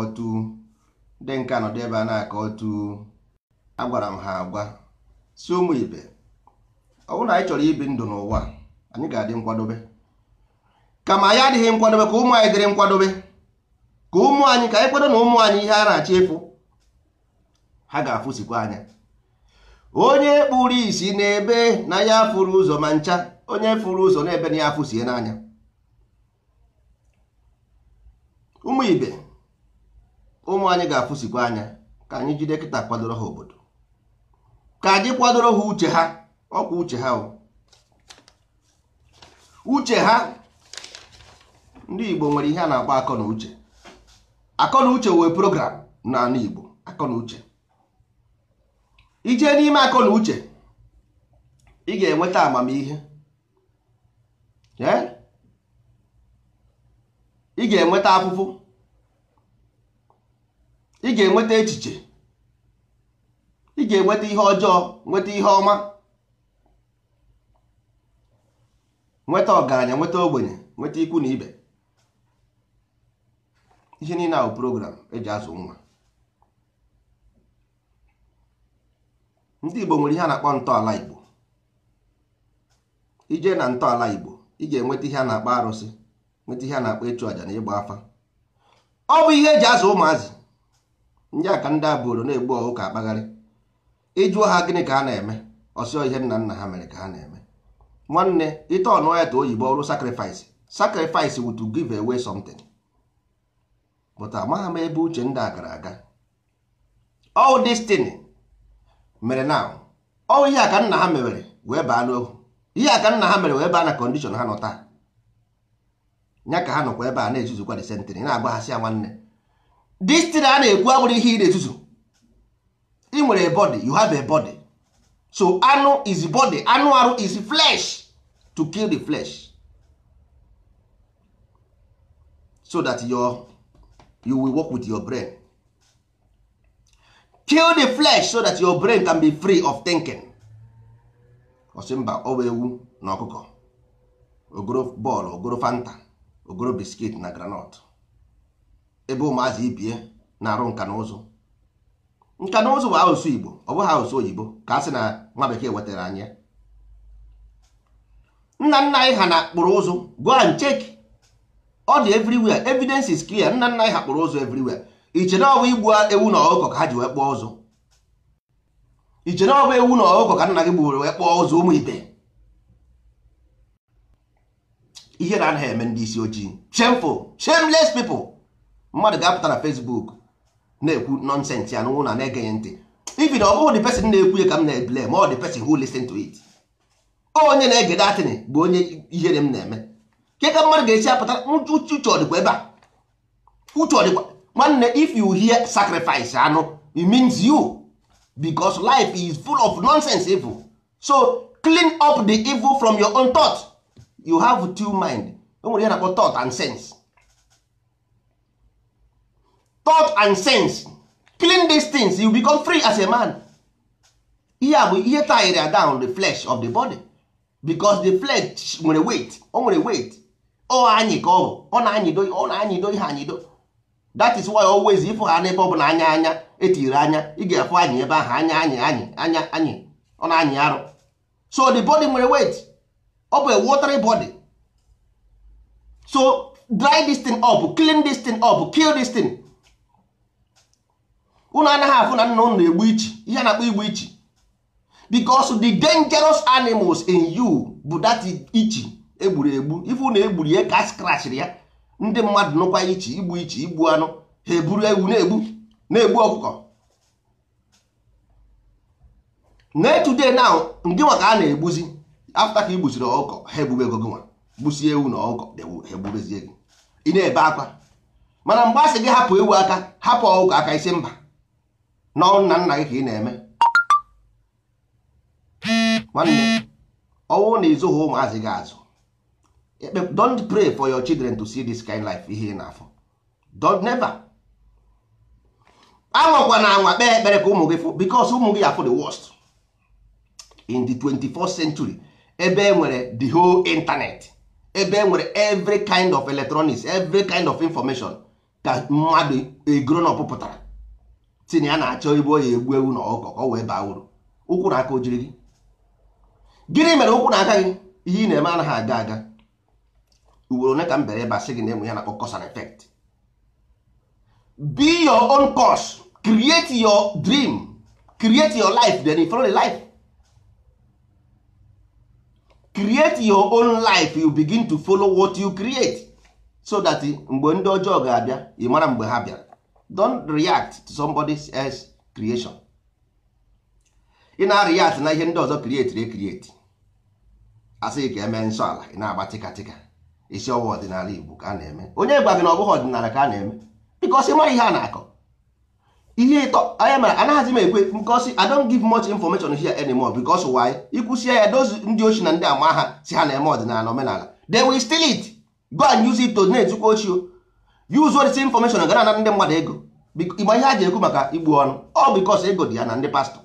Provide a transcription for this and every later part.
na-akọtu ndị nke anọdụ ebe a na otu agwara m ha agwa si ụmụ ibe ọ bụrụ na anyị chọrọ ibi ndụ n'ụwa anyị ga-adị nkwadobe kama anyị adịghị nkwadobe ka ụmụ anyị dịrị nkwadobe ka ụmụ anyị ka anyị kwado na ụmụ anyị ihe a na-achọ ịfụ ha ga-afụsikwa anya onye kpụrụ isi n'ebe na ya furu ụzọ ma ncha onye furu ụzọ n'ebe na ya afụsie n'anya ụmụ ibe ụmụ anyị ga-afụsikwa anya ka anyị jide kịta kwadoro ha obodo ka anyị kwadoro ha uche ha ọkwa uche ha uche ha ndị Igbo nwere ihe a na-akpọ akọ na uche akọ na uche wee program na Igbo akọ na uche ije n'ime akọ na uche ị ga-enweta amamihe ị ga-enweta afụfụ ị ga-enweta echiche ị ga-enweta ihe ọjọọ nweta ihe ọma nweta ọgaranya nweta ogbenye nweta ikwu na ibe ihe niile ahụ program eji azụ nwa ndị Igbo nwere ihe a na-akpọ ntọala Igbo ije na ntọala Igbo ị ga-enweta ihe a na-akpọ arụsị nweta ihe a na-akpọ ịchụ àjà na ịgba afa ọ bụ ihe eji azụ ụmụazị ndị aka ndị abụrụ na-egbu ọhụ ka akpagharị ịjụọ ha gịnị ka ha na-eme ọsịọ ihe nna nna ha mere ka ha na-eme nwanne ite ọnụ ya ta oyibo ọrụ sacrifice sacrifice wụ to give away something but amagha m ebe uche ndị a gara aga all this thing mere na ọ ihe aka nna ha mewere wee baa n'ohu ihe aka nna ha mere wee baa na kondishon ha nọ taa ya ka ha nọkwa ebe a na-ezuzukwa the na agbaghasị ya nwanne this thing a na-ekwu agbụrụ ihe ị na-etuzo ị nwere body you have a body so anụ is body anụ arụ is flesh to kill the flesh so that your you will work with your brain kill the flesh so that your brain can be free of thinking ọsị mba ọwa ewu na ọkụkọ ogoro bọọlụ ogoro fanta ogoro biskit na granọt ebe ụmụazị ibie na-arụ nka na ụzụ nka na ụzụ bụ asụsụ igbo ọ bụghị asụsụ oyibo ka a sị na nwa bekee wetara anya nna nna anyị ha na-akpụrụ ụzụ go and check ọ dị everywhere evidence is clear nna nna anyị ha kpụrụ ụzụ everywhere iche na ọbụ igbu ewu na ọkụkọ ka ha ji wee kpụọ ụzụ iche na ọbụ ewu na ọkụkọ ka nna gị gbuoro wee kpụọ ụzụ ụmụ ibe ihe na-anaghị eme ndị isi ojii shameful shameless people mmadụ ga-apụta na Facebook na-ekwu nonsense ya n'ụlọ na-egenye ntị na ọ bụghị di person na-ekwu ya ka m na-ebule ma ọ the person who listen to it onye na-ege datịnị bụ onye ihere m na-eme ke ka mmadụ ga-esi apụta uche ọdịkwa ebe a uche ọdịkwa nwanne if you hear sacrifice anụ it means you because life is full of nonsense evil so clean up the evil from your own thought you have two mind o nwere ihe na-akpọ thought and sense thought and sense clean these things you become free as a man ihe a bụ ihe tire down the flesh of the body because the flesh nwere weight o nwere weight O anyị ka ọ bụ ọ na-anyịdo ọ na-anyịdo ihe anyịdo that is why always ịfụ ha n'ebe ọ bụla anya anya etiri anya ị ga-afụ anyị ebe ahụ anya anyị anyị anya anyị ọ na-anyị arụ so the body nwere weight ọ bụ a watery body so dry this thing up clean this thing up kill this thing unu anaghị afụ na nna unu na-egbu ichi ihe na-akpọ igbu ichi because the dangerous animals in you bụ that ichi egburu egbu ife unu egburu ya ka skrachiri ya ndị mmadụ nụkwa ichi igbu ichi igbu anụ ha eburu ewu na-egbu na-egbu ọkụkọ na etude now ndị nwa a na-egbuzi afta ka igbuziri ọkụkọ ha egbube ego gị gbusie ewu na ọkụkọ ha egbubezie gị ị na-ebe akwa mana mgbe a sị gị hapụ ewu aka hapụ ọkụkọ aka isi mba nọ nna nna gị ka ị na-eme nwanne ọnwụ na ịzụghị ụmụazị gị azụ don't pray for your children to see this kind life ihe ị na-afọ don't never anwakwa na anwa kpee ekpere ka ụmụ gị fụ because ụmụ gị afọ the worst in the 21st century ebe enwere nwere the whole internet ebe enwere nwere every kind of electronics every kind of information ka mmadụ e grow na pụtara si na ya na-achọ igbu oyi egbu ewu na ọkụkọ ka ọ wee baa uru ụkwụ na aka ojiri gị gịnị mere ụkwụ na aka gị ihe ị na-eme anaghị aga aga ugboro ole ka m bere a gị na emụ ya na cause and efekt. be your own course create your dream create your life then you follow the life create your own life you begin to follow what you create so that mgbe ndị ọjọọ ga-abịa ị mara mgbe ha bịara don react to somebody else creation ị na-react na ihe ndị ọzọ create create asịghị ka eme nsọ ala ị na-agba tịkatịka isi ọwa ọdịnala Igbo ka a na-eme onye gwa gị na ọ bụghị ọdịnala ka a na-eme because ịma ihe a na-akọ ihe ịtọ anya mara anaghịzi m ekwe ngosi I don't give much information here anymore because why ikwụsie ya dozi ndị ochi na ndị ama ha si ha na-eme ọdịnala omenala they will steal it go and use it to na-etukwa ochio yuzuo disi infọmeshọn gara na ndị mmadụ ego igba ihe a ji ekwu maka igbu ọnụ ọ bikos ego dị ya na ndị pastọ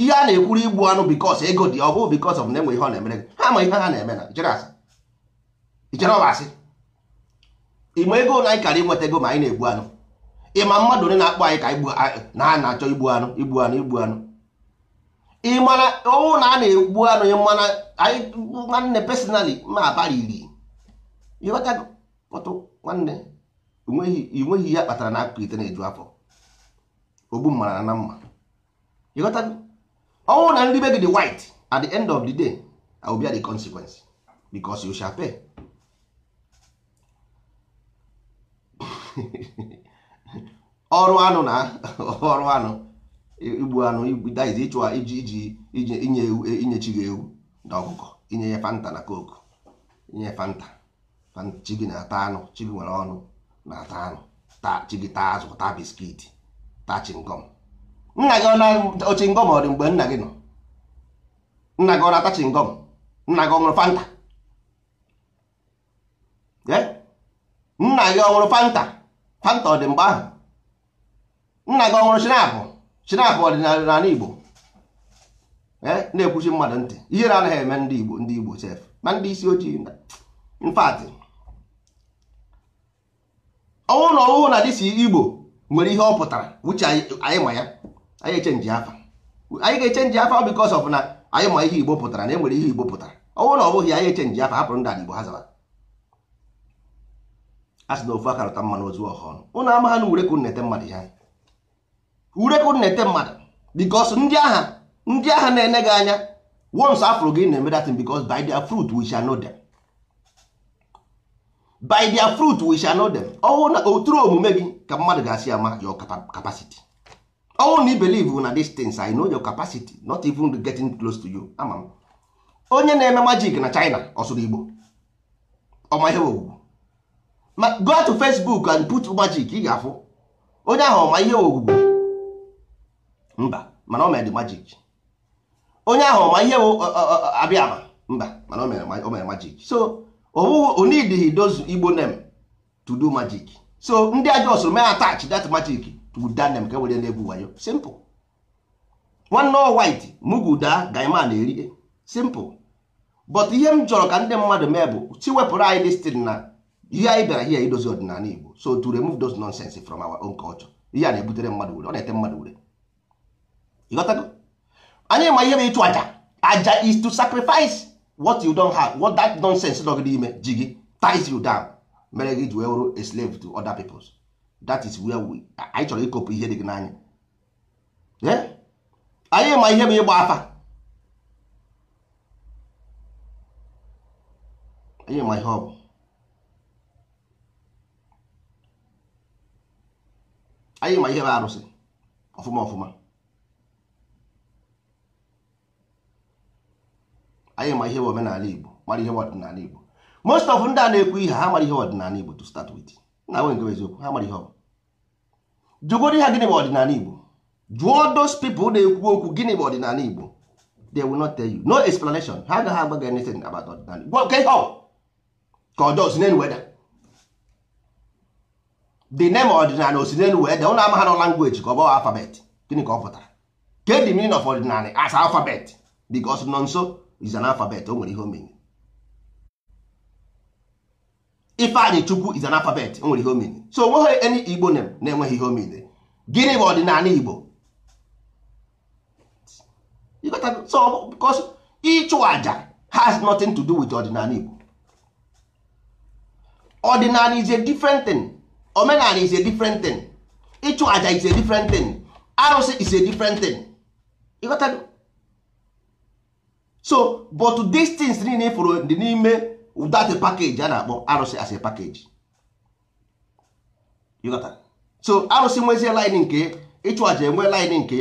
ihe a na-ekwuru igbu ọnụ bikos ego dị ọ bụ bikos of na-enwe ihe ọ na-emere gị ha ma ihe ha na-eme na ichere ọbasị ịma ego na anyị kara inweta ego ma anyị na-egbu anụ ịma mmadụ onye na-akpọ anyị ka na a na-achọ igbu anụ igbu anụ igbu anụ ịmana ọnwụ na a na-egbu anụ ịmana anyị nwanne pesinali ma abalị iri ịghọtago nwanne ị nweghị ihe kpatara na akụkọ ite na-eju afọ ogbu mmara na mma ịghọta ọnwụ na ndị be gị dị white at the end of the day I will at the consequence because you shall ọrụ anụ na ọrụ anụ igbu anụ daiz ịchụ iji iji inye ewu e, gị ewu na ọkụkọ inye ya fanta na coke inye fanta chi gị na-ata anụ chibi nwere ọnụ na-ata anụ taa chi azụ taa biskiti taa chingom nna gị ọ na ochingom ọ dị mgbe nna gị nọ nna gị ọ na-ata chingom nna gị ọ ṅụrụ fanta nna gị ọ ṅụrụ fanta fanta ọ dị mgbe ahụ nna gị ọ ṅụrụ shinapụ shinapụ n'ala igbo Ee? na-ekwuchi mmadụ ntị ihere anaghị eme ndị igbo ndị igbo sef ma ndị isi ojii in fact ọnwụ na ọnwụ na dịsi igbo nwere ihe ọ pụtara wuche anyị ma ya anyị echenji afa anyị ga-echenji afa because ọf na anyị ma ihe igbo pụtara na enwere ihe igbo pụtara ọnwụ na ọ bụghị anyị echenji afa hapụrụ ndị igbo ha zara a sị na ofu akarụta mmanụ ozu ọhụrụ ụnụ ama ha na ureku nnete mmadụ ha ureku nnete mmadụ because ndị agha ndị agha na-ene gị anya once afụrụ gị na-eme datin because by their by their fruit we shall know them ọwụ na oturu omume gị ka mmadụ ga-asị ama your capacity ọwụ na i believe na these things I know your capacity not even getting close to you ama m onye na-eme magic na China ọsụrụ Igbo ọma ihe owuwu ma go to Facebook and put magic ị ga-afụ onye ahụ ọma ihe owuwu mba mana o mere magic onye ahụ ọma ihe abịa ama mba mana o mere magic so onidighi dozu igbo name to do magic so ndị aja ọsụrụ mee attach that magic to guda name ka e were na-egwu wayo simple nwanne n'o white muguda gaima na-eri simple but ihe m chọrọ ka ndị mmadụ mee bụ chi wepụrụ anyị listin na ihe anyị bịara here idozi ọdịnala igbo so to remove those nonsense from our own culture ihe a na-ebutere mmadụ ure ọ na-ete mmadụ ure anyị ma ihe bụ ịchụ aja aja is to sacrifice what you don have what that nonsense dog dị ime ji gị ties you down mere gị ji wee a slave to other peoples that is where we anyị chọrọ ịkopụ ihe dị gị n'anya anyị ma ihe m ịgba afa anyị ma ihe ọ bụ anyị ma ihe bụ arụsị ọfụma ọfụma anyị ma ihe omenala Igbo mara ihe ọdịnala Igbo most of ndị a na-ekwu ihe ha mara ihe ọdịnala Igbo to start with na nwe nke eziokwu ha mara ihe ọ jụgoro ha gịnị bụ ọdịnala Igbo jụọ those people na-ekwu okwu gịnị bụ ọdịnala Igbo they will not tell you no explanation ha agaghị agba gị anything about ọdịnala Igbo ka ihe ọ ka ọjọọ si n'elu weda the name ọdịnala osi n'elu weda ụnụ ama ha language ka ọ bụghị alfabet gịnị ka ọ pụtara ke the meaning of ọdịnala as alfabet because nọ nso is an alphabet o nwere ihe o Ifeanyị Chukwu is an alphabet o nwere ihe so onweghị any Igbo name na-enweghị ihe o gịnị bụ ọdịnala Igbo so because ịchụ aja has nothing to do with ọdịnala Igbo ọdịnala is a different thing omenala is a different thing ịchụ aja is a different thing arụsị is a different thing ịghọtago so but these things niile e fụrụ dị n'ime that package a na-akpọ arụsị as a package so arụsị nwezie line nke ịchụ aja enwe line nke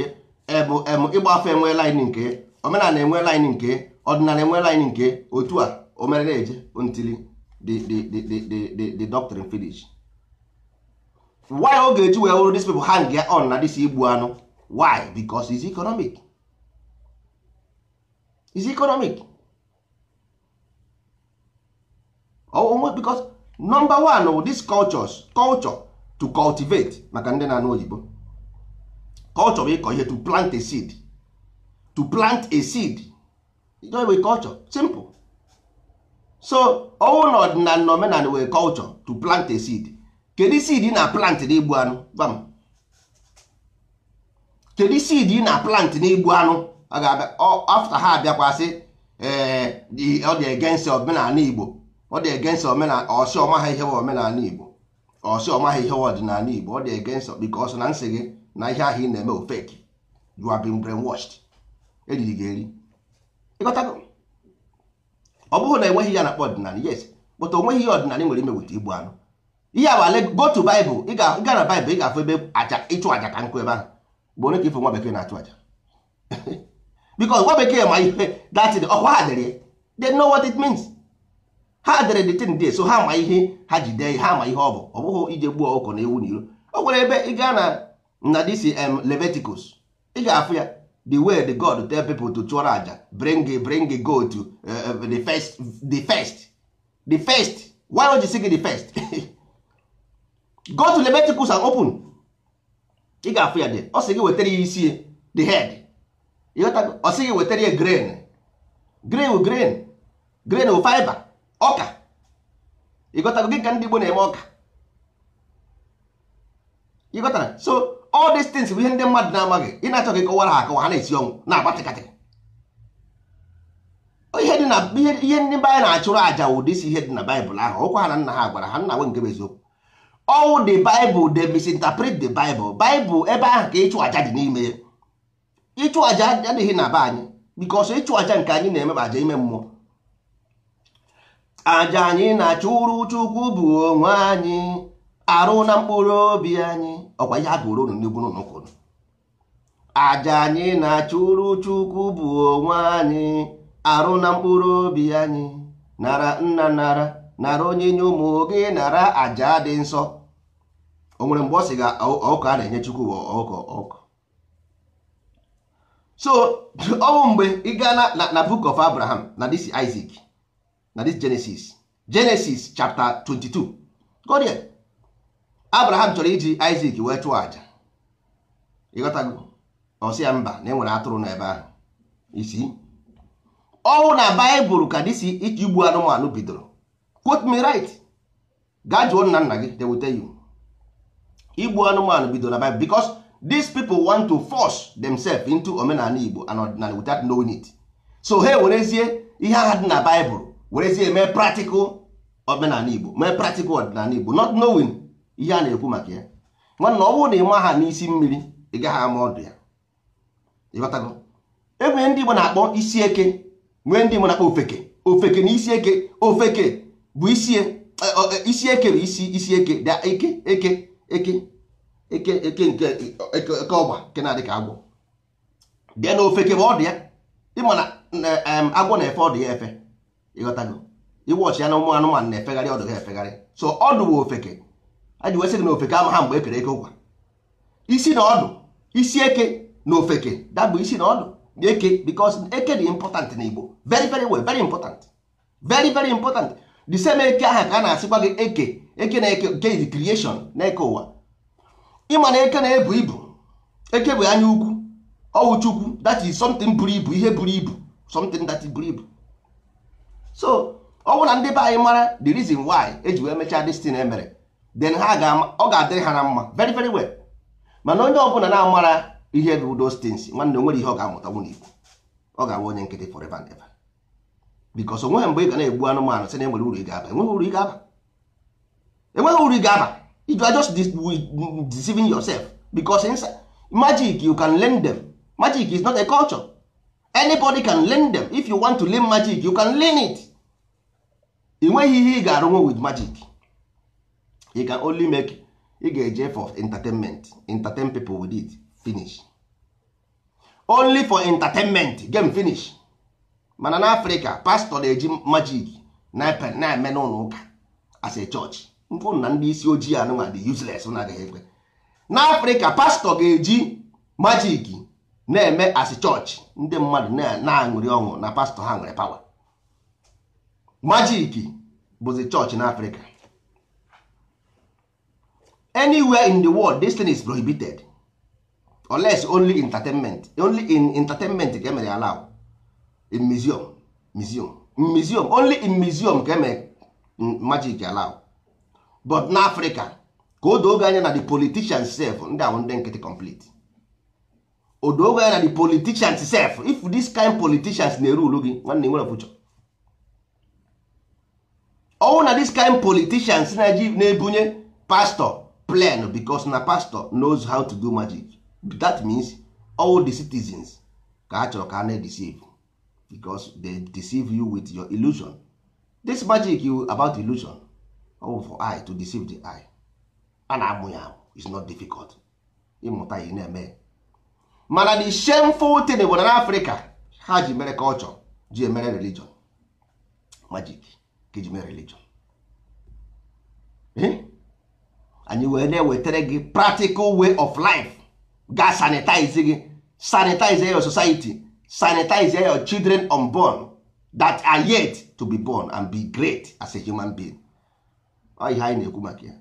emu ịgba afọ enwe line nke omenala enwe line nke ọdịnala enwe line nke otu a omerere eje until the the the the the doctrine finish why oge eji wee wụrụ dis people hang on na dis igbu anụ why because it's economic is economic onwe because number one wụ oh, these cultures culture to cultivate maka ndị na-anụ oyibo culture bụ ịkọ ihe to plant a seed to plant a seed wee culture simple so ọnwụ na ọdịnala na omenala wee culture to plant a seed kedu seed ị na plant n'igbu anụ gwa m kedu seed ị na plant n'igbu anụ a ga afta ha abịakwasị ọ dị omenala Igbo ọ dị egenst omenala Igbo ọsị ọmaghị ihe wa ọdịnala Igbo ọ dị egenst bikos na nsị gị na ihe ahụ ị na-eme ofeki eriri gị eri ọ bụghị na enweghị ya na akpọ ọdịnala yes onweghị ihe ọdịnala nwere ime ga na ị afụ ebe aja ka nkụ ebe ahụ ka ife nwa bekee na aja because nwa bekee ma ihe that ọkwa ha dere ya they know what it means ha dere the thing there so ha ma ihe ha ji jide ha ma ihe ọ bụ ọ bụghị ije gbuo ọkụkọ na ewu n'iro ọ nwere ebe ị gaa na na this um, Leviticus ị ga-afụ ya the way the God tell people to chụọrọ aja bring bring goat to uh, uh, the first the first the first why don't you sing the first go to Leviticus and open ị ga-afụ ya de ọ sị gị wetara ya isi the head ọ sị gị wetara ya grain grain grain grain wụ fiber ọka ịghọtago gị ka ndị Igbo na-eme ọka ịghọtara so all these things bụ ihe ndị mmadụ na-amaghị ị na-achọ gị kọwara ha akọwa ha na-esi ọnwụ na-agbatịkatị ihe dị na ihe ndị na-achụrụ aja ụdị isi ihe dị na baịbụl ahụ ọkwa ha na nna ha gwara ha nna nwe nke bụ eziokwu ọwụ the bible they misinterpret the bible bible ebe ahụ ka ịchụ aja dị n'ime ya ịchụ aja adịghị na be anyị ọsọ ịchụ aja nke anyị na-eme aja ime mmụọ aja anyị na-achụrụ chukwu bụ onwe anyị arụ na mkpụrụ obi anyị ọkwa ihe a gụrụ unu n'igbu n'ụkwụrụ aja anyị na-achụrụ chukwu bụ onwe anyị arụ na mkpụrụ obi anyị nara nna nara nara nye ụmụ gị nara aja dị nsọ o nwere mgbe ọ sị ga ọkụ a na-enye chukwu ọkụ. ọkụkọ so ọnwụ mgbe ị gaa na book of abraham na this isaac na this genesis genesis chapter 22 go there abraham chọrọ iji isaac wee chụọ aja ịghọtago ọsịa mba na enwere atụrụ ebe ahụ isi ọnwụ na baịbụl ka dis iji igbu anụmanụ bidoro quote me right gaa jụọ nna nna gị they you igbu anụmanụ bidoro na baịbụl because these people want to force themselves into omenala igbo and ọdịnala without knowing it so ha werezie ihe agha dị na bible werezie mee practical omenala igbo mee practical ọdịnala igbo not knowing ihe a na-ekwu maka ya nwanna ọ bụrụ na ịma ha n'isi mmiri ị gaghị ama ọdụ ya ịghọtago enwee ndị igbo na-akpọ isi eke nwee ndị igbo na-akpọ ofeke ofeke na isi eke ofeke bụ isi e, e, e, eke bụ isi isi eke eke eke eke eke nke eke ọgba nke na-adị ka agwọ dị na ofe kebe ọ dị ya ịma na agwọ na-efe ọdụ ya efe ịghọtago iwọchi ya na ụmụ anụmanụ na-efegharị ọdụ ha efegharị so ọdụ bụ ofeke aji wesị gị na ofeke ama ha mgbe ekere eke ụkwa isi na ọdụ isi eke na ofeke dabụ isi na ọdụ na eke because eke dị important na Igbo very very well very important very very important the same eke ahụ ka a na-asịkwa gị eke eke na eke nke creation na eke ụwa ịma na eke na-ebu ibu eke bụ anya ukwu ọwụ chukwu that is something buru ibu ihe buru ibu something that buru ibu so ọ bụ na ndị be anyị mara the reason why eji wee mechaa destin emere then ha ga-ama ọ ga-adịrị ha na mma very very well mana onye ọ bụla na-amara ihe bụ those things nwanne onwere ihe ọ ga-amụta nwunye igbo ọ ga-abụ onye nkịtị forever and ever because onweghị mgbe ị ga na-egbu anụmanụ si na enwere uru ị ga-aba enweghị uru ị ga-aba you are just mm, deceiving yourself because inside magic you can learn them magic is not a culture anybody can learn them if you want to learn magic you can learn it ị nweghị ihe ị ga-arụnwe with magic you can only make ị ga-eje for entertainment entertain people with it finish only for entertainment game finish mana Africa pastor na-eji magic na-eme n'ụlọ ụka as a church mfụ na ndị isi ojii anụnwa dị useles na agaghị ekwe na afrịka pastọ ga-eji majiki na-eme asị chọọchị ndị mmadụ na-aṅụrị ọṅụ na pastọ ha nwere pawa majiki bụzi chọọchị na afrịka anywhere in the world this thing is prohibited unless only entertainment only in entertainment ka emere allow in museum museum museum only in museum ka emere magic allow but na Africa ka o anya na the politicians sef ndị ahụ ndị nkịtị complete o doogo anya na the politicians sef if this kind politicians na-eru ulu gị nwanne nwere future ọnwụ na this kind politicians na-ebunye pastor plan because na pastor knows how to do magic that means all the citizens ka ha chọrọ ka a na-deceive because they deceive you with your illusion this magic you about illusion ọwụ for eye to deceive the eye a na-amụ ya amụ is not difficult ịmụta ya na-eme mana the shameful thing bụ na n'afrịka ha ji mere culture ji emere religion magic ka ji mere religion eh? anyị wee na-ewetara gị practical way of life ga sanitize gị sanitize your society sanitize your children unborn that are yet to be born and be great as a human being ọ ihe anyị na-ekwu maka ya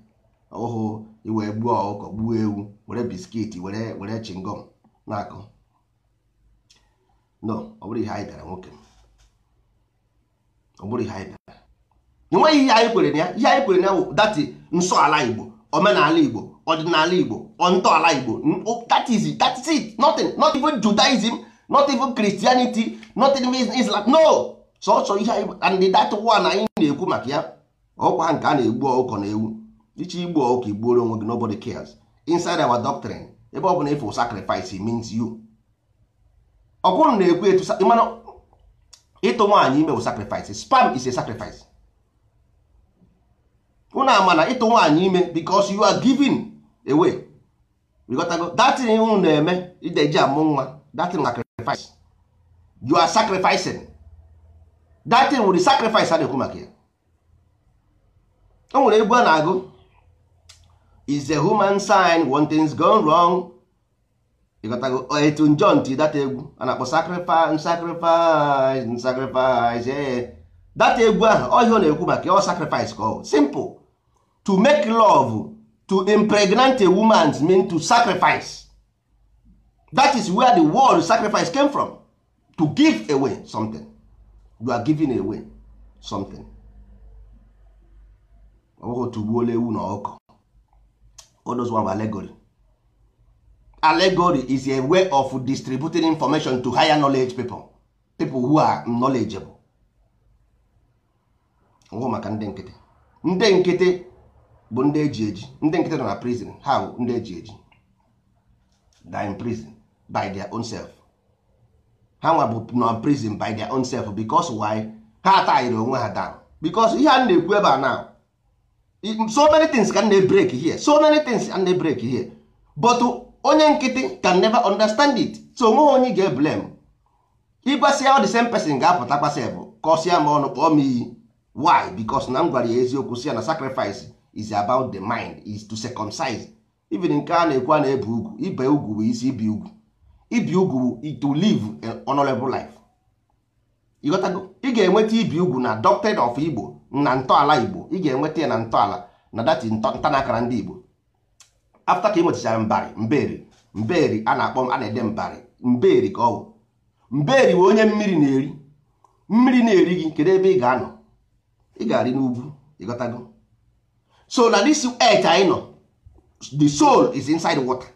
ọhụ iwee gbuo ọkụkọ gbuo ewu were biskiti were were chingom na akụ no ọ bụrụ ihe anyị dara nwoke ọ bụrụ ihe anyị dara enweghị ihe anyị kwere na ya ihe anyị kwere na ya dati nsọ ala igbo omenala igbo ọdịnala igbo ntọala igbo tatizi is that is it not even judaism not even christianity not even islam no sọsọ ihe anyị and that one anyị na-ekwu maka ya ọkwa nke a na-egbu ọkụkọ na ewu iche igbu ọkụkọ igbuoro onwe gị nobody cares inside our doctrine ebe ọ bụ na ịfụ sacrifice means you ọ bụrụ na ekwu etu mana ịtụ nwaanyị ime bụ sacrifice spam is a sacrifice unu ama na ịtụ nwaanyị ime because you are giving away rigotago datin unu na-eme ideji amụ nwa datin sacrifice you are sacrificing datin wụrụ sacrifice a na-ekwu maka ya o nwere egwu a na-agụ is a human sign one thing's gone wrong ịgotago etu oh, John ti data egwu a na-akpọ sacrifice sacrifice sacrifice ee data egwu ahụ ọ ihe ọ na-ekwu maka ọ oh, sacrifice ka ọ simple to make love to impregnate a woman mean to sacrifice that is where the word sacrifice came from to give away something you are giving away something ọbụghị otu gbuola ewu na ọkụ odozwa allegory allegory is a way of distributing information to higher knowledge people people who are knowledgeable ngwụ maka ndị nkịtị ndị nkịtị bụ ndị eji eji ndị nkịtị nọ na prison ha bụ ndị eji eji die in prison by their own self ha nwa bụ na prison by their own self because why ha atahiri onwe ha down because ihe a na-ekwu ebe a now so many things can they break here so many things can they break here but onye nkịtị can never understand it so onweghị onye ga blame ịgbasịa the same person ga-apụta kpasịa bụ kọsịa m ọnụ kpọọ m iyi why because na m gwara ya eziokwu sị ya na sacrifice is about the mind is to circumcise even nke a na-ekwu a na-ebe ugwu ibe ugwu bụ isi ibi ugwu ibi ugwu to live an honorable life ịghọtago ị ga-enweta ibi ugwu na doctrine of Igbo na ntọala igbo ị ga-enweta ya na ntọala na dati ntanakara ndị igbo afta ka ị nwetachara mbari mberi mberi a na-akpọ a na-ede mbari mberi ka ọ bụ mberi bụ onye mmiri na-eri mmiri na-eri gị kedu ebe ị ga-anọ ị ga-arị n'ugwu ịghọtago so na this earth anyị nọ the soul is inside water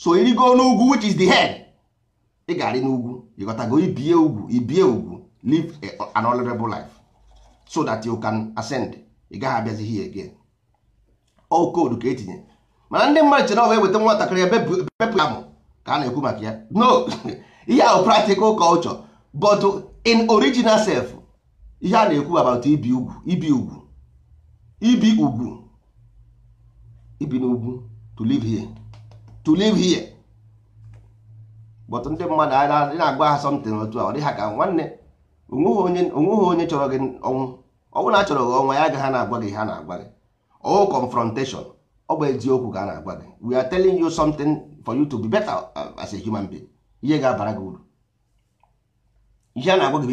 so irigo n'ugwu which is the head ị ga-arị n'ugwu ịghọtago ibie ugwu ibie ugwu live an honorable life so that you can ascend ị gaghị abịazi here again all oh, code ka etinye mana ndị mmadụ chere ọwa eweta nwatakịrị ya bepụ ya ka a na-ekwu maka ya no ihe ahụ practical culture but in original self ihe a na-ekwu about ibi ugwu ibi ugwu ibi ugwu ibi n'ugwu to live here to live here but ndị mmadụ a na agba ha something otu a ọ dịghị ka nwanne onweghị onye chọrọ gị ọnwụ ọnwụ na achọrọ gị ọnwa ya agaghị na-agwa gị ha na-agwa gị ọ confrontation ọ bụ eziokwu ka a na-agwa gị we are telling you something for you to be better as a human being ihe ga-abara gị uru ihe a na-agwa gị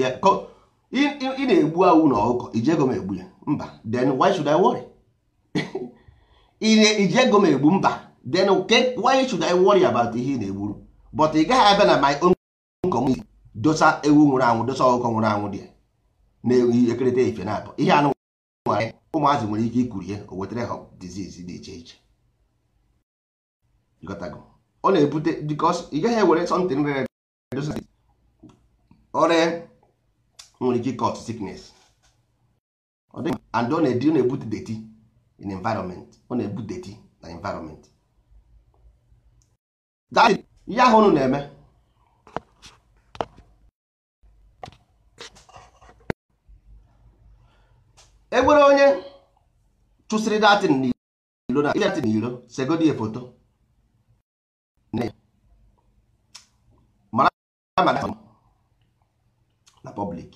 ị na-egbu awụ na ọkụkọ ijego m egbu ya mba then why should I worry ijego m egbu mba then why should I worry about ihe ị na-egburu but ị gaghị abịa na my own community dosa ewu nwụrụ anwụ dosa ọkụkọ nwụrụ anwụ dị na-ewu ekerịta efe na abụ ihe anụ nwanyị ụmụazị nwere ike ihe o wetara ha dizizi dị iche iche ọ na-ebute bikos ị gaghị ewere sọntin rere dosa ọrịa nwere ike cot siknes and ọ na-edi ọ na-ebute deti in environment ọ na-ebute deti na environment ihe ahụ unu na-eme enwere onye chụsịrị datin n'iro na datin n'iro segodi ya foto mara na public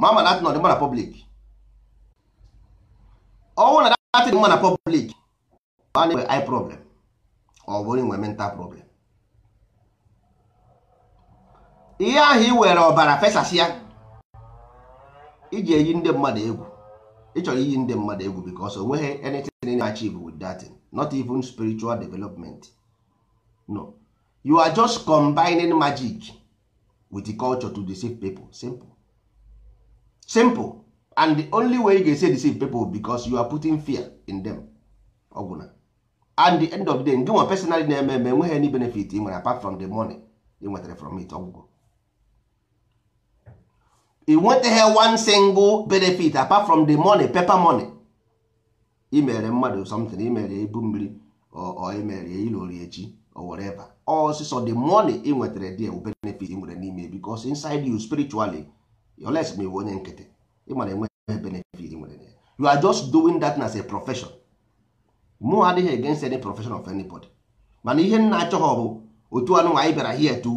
ma ma datin ọdịmma na public ọnwụ na datin mma na public ọ na-enwe eye problem ọ bụrụ inwe mental problem ihe ahụ ị were ọbara fesasịa iji eyi ndị mmadụ egwu ịchọrọ iyi ndị mmadụ egwu because onweghị anything achieve with datin not even spiritual development no you are just combining magic with the culture to deceive people simple simple and the only way you ga-esi deceive people because you are putting fear in them ọgwụna and the end of the day ndị nwa personally na-eme eme enweghị any benefit ị nwere apart from the money ị nwetara from it ọgwụgwọ ị nwetaghị one single benefit apart from the money paper money imere mmadụ something imere ebu mmiri ọ imere ilori echi or whatever ọsịsọ the money ị nwetara dị ewu benefit nwere n'ime because inside you spiritually yoles ma iwe onye nkịtị ịmara enweghị benefit nwere you are just doing that as a profession mụ adịghị against any profession of anybody mana ihe nna achọghị bụ otu anụnwa anyị bịara here to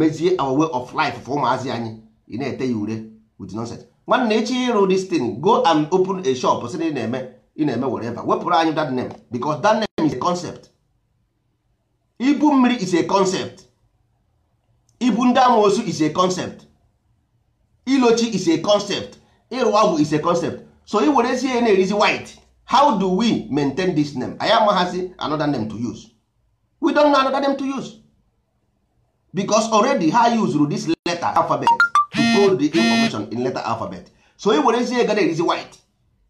mezie our way of life for ụmụazị anyị ị na-ete ya ure with nonsense nwanne echi ịrụ this thing go and open a shop sị na eme ị na-eme whatever wepụrụ anyị that name because that name is a concept ibu mmiri is a concept ibu ndị amoosu is a concept ilochi is a concept ịrụ ọgwụ is a concept so ị werezie na-erizi white how do we maintain this name anyị amaghazi another name to use we don't know another name to use because already ha used this letter alphabet decode the information in letter alphabet so ị were ezi ga erizi white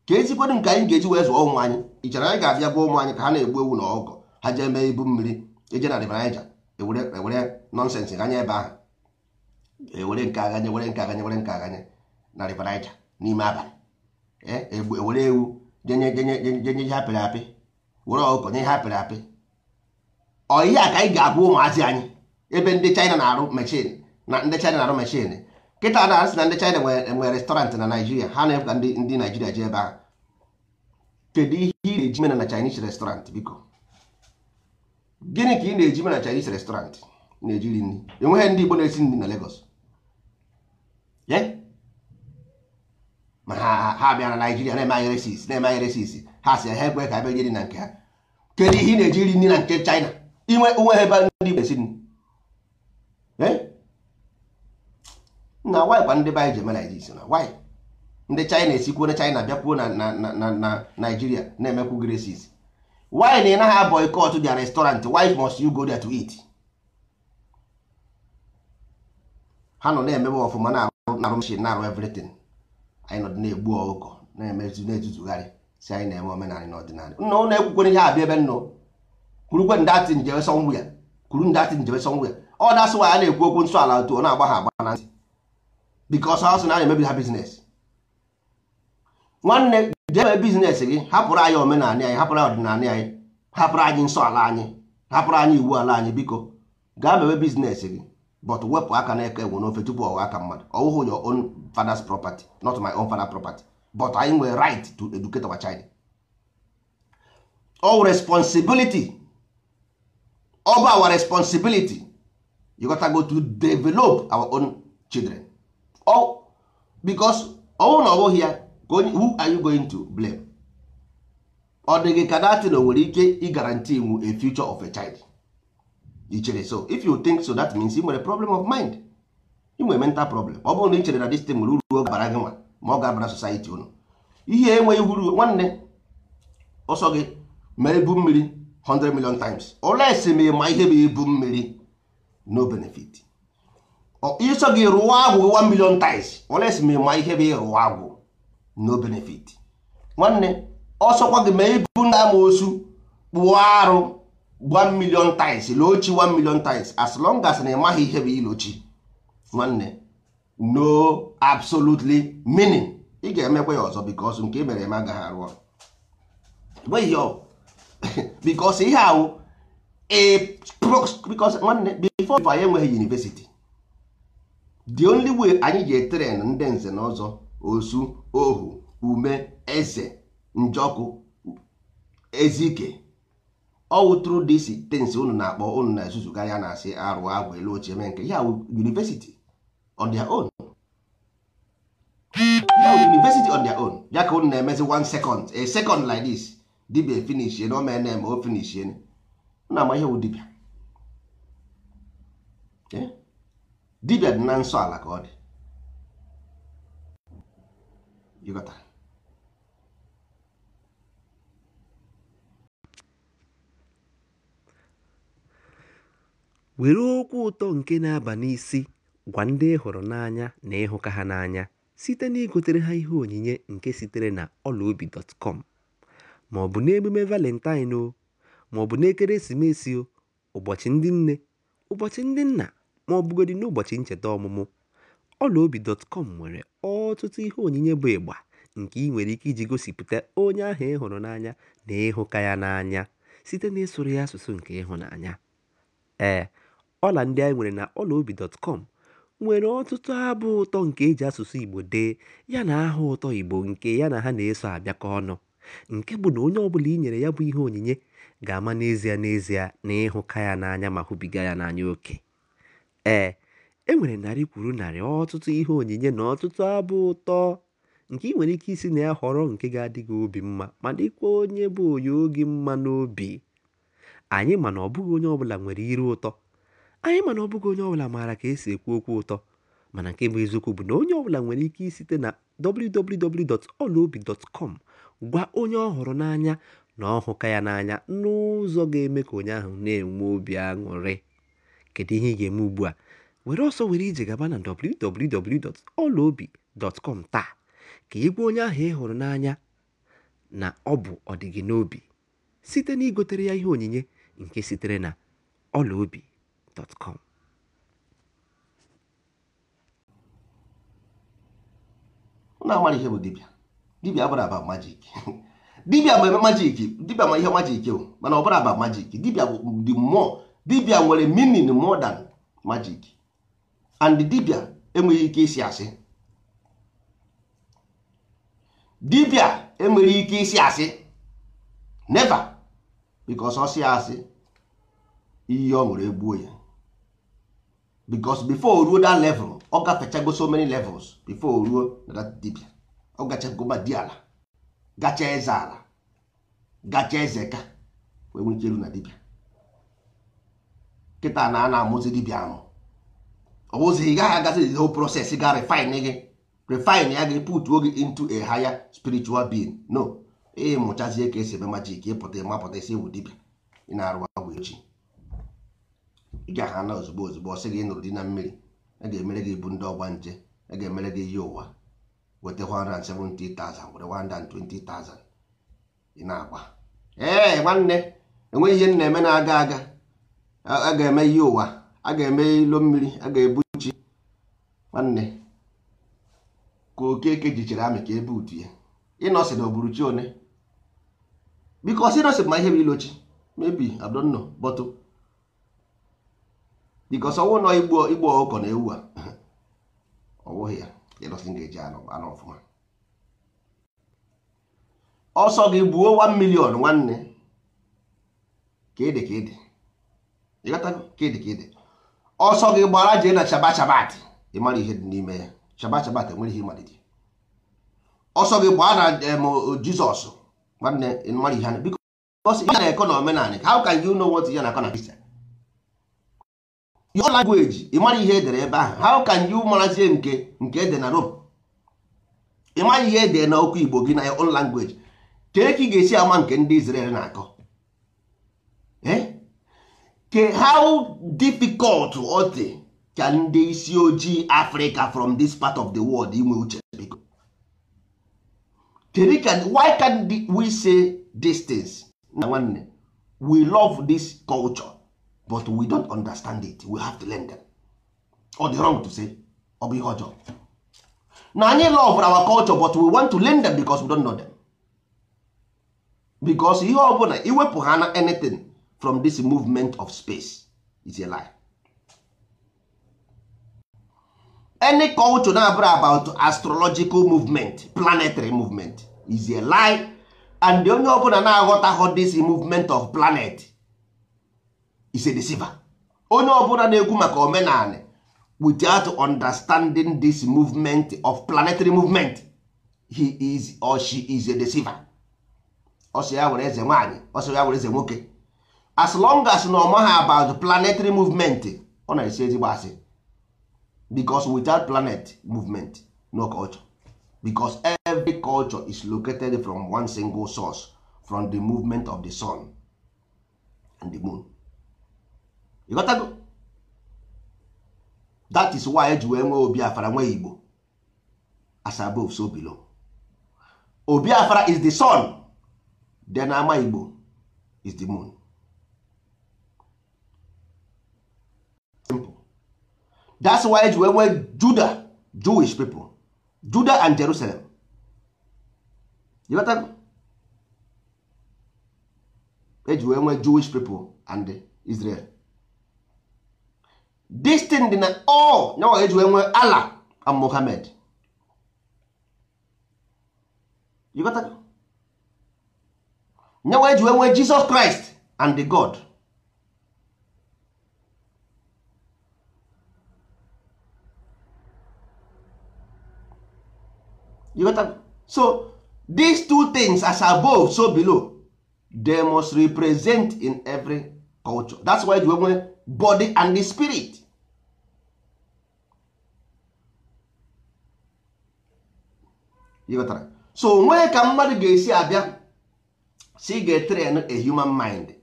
ka ezikwadụ nke anyị ga-eji wee zụọ ụmụ anyị ị ịchara anyị ga-abịa gwa ụmụ anyị ka ha na-egbu ewu na ọgọ ha jee mee ibu mmiri eje na River Niger ewere e nọnsensị ganye ebe ahụ ewere nke aganye were nke aganye were nke aganye na River Niger n'ime abalị ewere e e ewu jenye jenye ihe apịrị apị were ọkụkọ nye ihe apịrị apị ọ ihe a ka anyị ga-agwa ụmụazị anyị ebe ndị China na-arụ mechin na ndị China na-arụ mechin kịta na asị na ndị China nwere restọrantị na Naịjirịa ha na-efe ka ndị Naịjirịa jee ebe ahụ kedu ihe ị na-eji mena na Chinese restaurant biko gịnị ka ị na-eji mena na Chinese restaurant na-ejiri nri enweghị ndị Igbo na-esi nri na Lagos ma ha bịara na na-eme anyị na-eme anyị ha si ha ekwe ka ebe jiri na nke ha kedu ihe ị na-eji nri na nke China inwe onwe ebe ndị Igbo na-esi nri na wanyị kwa ndị be anyị ji eme na wanyị ndị china esikwuo na china bịakwuo na na naijiria na-emekwu gresis why na ị naghị boycott their restaurant why must you go there to eat ha nọ na-emebe ọfụma na-arụ na-arụ everything anyị nọ na-egbu na-emezu etutugharị si anyị na-eme omenala ọdịnala nna ụlọ ekwukwere ihe abịa ebe kwurukwe ndị ọ dasị na-ekwu okwu nsọ ala otu agba agba because ha sị na emebi ha biznes nwanne jee mee biznes gị hapụrụ anyị omenala anyị eh? hapụrụ anyị ọdịnala anyị eh? hapụrụ anyị nsọ ala anyị eh? hapụrụ anyị iwu ala anyị biko gaa mewe biznes gị but wepụ aka na n'eke ewu n'ofe tupu ọwa aka mmadụ ọwụhụ your own father's property not my own father's property but anyị nwere right to educate our child all responsibility all our responsibility you gotta go to develop our own children Oh, because ọnwụ na ọ ya ka onye who are you going to blame ọ dịghị ka datin nwere ike ịgaranti iwu a future of a child i chere so if you think so that means ị nwere problem of mind ị nwere mental problem ọ bụrụ na ị chere na this thing nwere uru ọ ga gị nwa ma ọ ga society unu ihe enweghị uru nwanne ọsọ gị ma ebu mmiri 100 million times olesi ma ihe bụ ibu mmiri no benefit iso gị rụọ agwụ 1 million times oles ma ịma ihe bụ ịrụ agwụ no benefit nwanne ọsọkwa gị ma ibu na amosu kpụọ arụ 1 million times lochi 1 million times as long as na ịmaghị ihe bụ ilochi nwanne no absolutely meaning ị ga-emekwa ya ọzọ because nke e mere eme agaghị arụ ọrụ because ihe ahụ awụ nwanne before enweghị university the only way anyị ji tren ndị nze na ọzọ osu ohu ume eze njọkụ ezike all through this things unu na-akpọ unu na-ezuzuga ya na-asị arụ agwa elu ochie mee nke ya university on their own university on their own ya ka unu na-emezi one second a second like this dibia finishie na na-eme o na ama ihe dibia eh? dibịa na nsọ ka ọ dị ịghọtara were okwu ụtọ nke na-aba n'isi gwa ndị ị hụrụ n'anya na ịhụka ha n'anya site na igotere ha ihe onyinye nke sitere na ọlaobi.com ma ọ bụ n'emume valentine o ma ọ bụ n'ekeresimesi o ụbọchị ndị nne ụbọchị ndị nna ma ọ bụgodị n'ụbọchị ncheta ọmụmụ, ọlaobi.com nwere ọtụtụ ihe onyinye bụ ịgba nke ị nwere ike iji gosipụta onye ahụ ị hụrụ n'anya na ịhụka ya n'anya site n'ịsụrụ ya asụsụ nke ịhụnanya. Ee, ọla ndị anyị nwere na ọlaobi.com nwere ọtụtụ abụ ụtọ nke e ji asụsụ Igbo dee yana aha ụtọ Igbo nke ya na ha na-eso abịakọ ọnụ, nke bụ na onye ọbụla i nyere ya bụ ihe onyinye ga-ama n'ezie n'ezie na ịhụka ya n'anya ma hụbiga ya n'anya oke. Ee, e nwere narị kwuru narị ọtụtụ ihe onyinye na ọtụtụ abụ ụtọ nke ị nwere ike isi na ya họrọ nke ga adịghị obi mma ma dịkwa onye bụ onye oge mma n'obi. Anyị ma na ọ bụghị onye ọbụla nwere iru ụtọ, anyị ma na ọ bụghị onye ọbụla maara ka esi ekwu okwu ụtọ, mana nke bụ eziokwu bụ na onye ọbụla nwere ike isite na www.olaobi.com gwa onye ọ hụrụ n'anya na ọhụka ya n'anya n'ụzọ ga-eme ka onye ahụ na-enwe obi aṅụrị. kedu ihe ị ga-eme ugbu a were ọsọ were ije gaba na www.ọlaobi.com taa ka ị gwa onye ahụ ị hụrụ n'anya na ọ bụ ọdịgị n'obi site na igotere ya ihe onyinye nke sitere na ọlaobi.com na agbara ihe bụ dibịa dibịa abụrụ aba majik dibịa bụ majik dibịa ma ihe majik o mana ọ bụrụ aba majik dibịa bụ the more dibia nwere meaning more than magic and dibia enweghị ike isi asị dibia enwere ike isi asị never because ọ si asị iyi ọ nwere egbuo ya because before ruo that level ọ gafechago so many levels before ruo na dibia ọ gachagoma di ala gacha eze ala gacha eze ka wee nwee ike na dibia kịta na a na-amụzi dibịa amụ ọ bụzi ị gaghị agazi whole proses ga e refine gị refine ya gị e putuo gị into a higher spiritual being no ịmụchazie e ka esi eme majik ịpụta ịmapụta isi ewu dibịa ị na-arụ agwa echi ị gaghị na ozugbo ozugbo ọsị sị gị ịnụrụ dị na mmiri a ga-emere gị ibu ndị ọgba nje a ga-emere gị ihe ụwa weta 170,000 were 120,000 ị na-agba ee nwanne enweghị ihe m na-eme na-aga aga a ga-eme ihe ụwa a ga-eme ilo mmiri a ga-ebu chi nwanne ka okeke jichiri amị ka ebe utu ya ịnọsị na ogburu chi one bikos ịnọsị ma ihe bụ ilochi mebi adonno bọtụ bikos ọnwụ nọ igbo igbo ọkụkọ na ewu a ọwụghị ya ịnọsị ga-eji anụ ọfụma ọsọ gị buo 1 million nwanne ka ịdị ka ịdị ọsọ gị gbara jee na chaba chabat ịmara ihe dị n'ime ya chaba chabat enwere ihe ịmalite ọsọ gị gbaa na jizọs nwanne ịmara ihe biko ya na-ekọ na omenanị how can you know what ya na-akọ na kristian your language ịmara ihe edere ebe ahụ how can you marazie nke nke ede na rome ịmara ihe edere na okwu igbo gị na your own language ka ị ga-esi ama nke ndị Israel na-akọ ke how difficult ọ dị ka ndị isi ojii Africa from this part of the world inwe uche kedu ka why can we say these things na nwanne we love this culture but we don't understand it we have to learn them or dị wrong to say ọ bụ ihe ọjọọ na anyị love our culture but we want to learn them because we don't know them because ihe ọ bụla iwepụ ha na anything from this movement of space is a lie. any culture na-abụrụ about astrological movement planetary movement is a lie and the onye ọbụla na-aghọtaghọ this movement of planet is a deceiver. onye ọbụla na-ekwu maka omenala without understanding this movement of planetary movement he is or she is a deceiver. ọsọ ya were eze nwaanyị ọsọ ya were eze nwoke as long as na ọma ha about planetary movement ọ na-esi ezigbo asị because without planet movement no culture because every culture is located from one single source from the movement of the sun and the moon you got go? that is why eji wee nwee Obiafra nwee Igbo as above so below Obiafra is the sun then Ama Igbo is the moon simple that's why eji wee juda Jewish people juda and Jerusalem eji wee nwee Jewish people and Israel this thing dị na all nyawa eji wee nwee Allah and Muhammad nyawa eji wee nwee Jesus Christ and the God you get to, so these two things as above so below they must represent in every culture that's why you nwere body and the spirit you got to, so nwee ka mmadụ ga-esi abịa si ga-train a human mind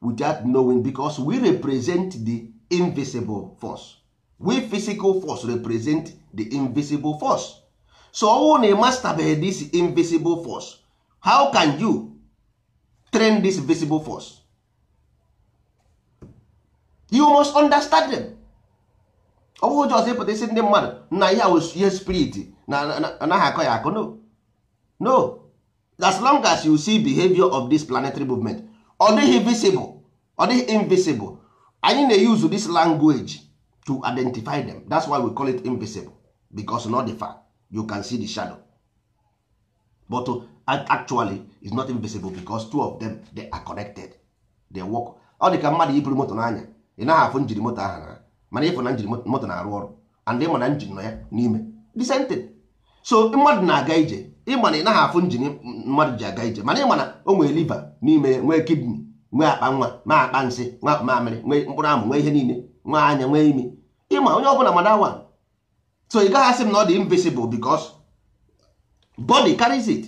without knowing because we represent the invisible force we physical force represent the invisible force so ọnwụ na ịmastabeghị this invisible force how can you train this visible force you must understand them ọ bụghị jọs ịpụta isi ndị mmadụ na ya ihe spirit na anaghị akọ ya akọ no no as long as you see behavior of this planetary movement ọ dịghị visible ọ dịghị invisible anyị na-use this language to identify them that's why we call it invisible because not the fact you can see the shadow but uh, actually is not invisible because two of them they are connected they work ọ dị ka mmadụ iburu moto n'anya ị naghị afụ njiri moto ahụ na mana ịfụ na njiri moto na-arụ ọrụ and ịma na njin nọ ya n'ime the so mmadụ na-aga ije ịma na ị naghị afụ njin mmadụ ji aga ije mana ịma na o nwee liva n'ime nwee kidney nwee akpa nwa nwee akpa nsị nwee akpa mamịrị nwee mkpụrụ amụ nwee ihe niile nwee anya nwee imi ịma onye ọ bụla mana awa so ị gaghị asị m na ọ dị invisible because body carries it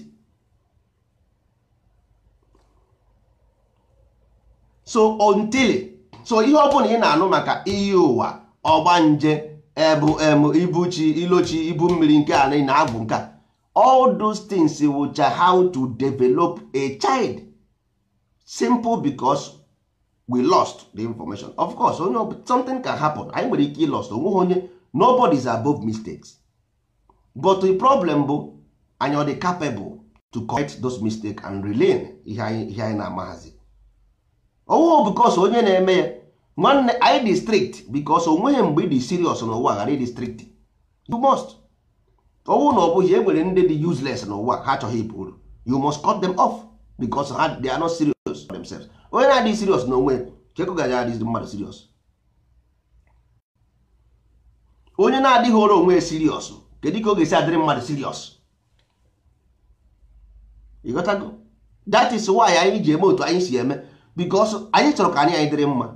so until so ihe ọ bụla ị na-anụ maka iyi ụwa nje ebu emu ibuchi ilochi ibu mmiri nke ị na-abụ nke a all those things wụcha how to develop a child simple because we lost the information of course onye something can happen anyị nwere ike ilost onweghị onye nobody is above mistakes but the problem bụ anyị ọ dị capable to correct those mistakes and relearn ihe anyị na-amaghazi owo because onye na-eme ya nwanne anyị dị strict because onweghị mgbe ịdị serious n'ụwa ghara ịdị strict you must owu na ọ bụghị e nwere ndị dị useless n'ụwa ha achọghị ịbụ uru you must cut them off because ha they are not serious themselves onye na-adịghị serious na onwe chekụgaji mmadụ serious onye na-adịghị ọrụ onwe siriọs kedu ka ọ ga-esi adịrị mmadụ siriọs ịghọtago that is why anyị ji eme otu anyị si eme because anyị chọrọ ka anyị anyị dịrị mma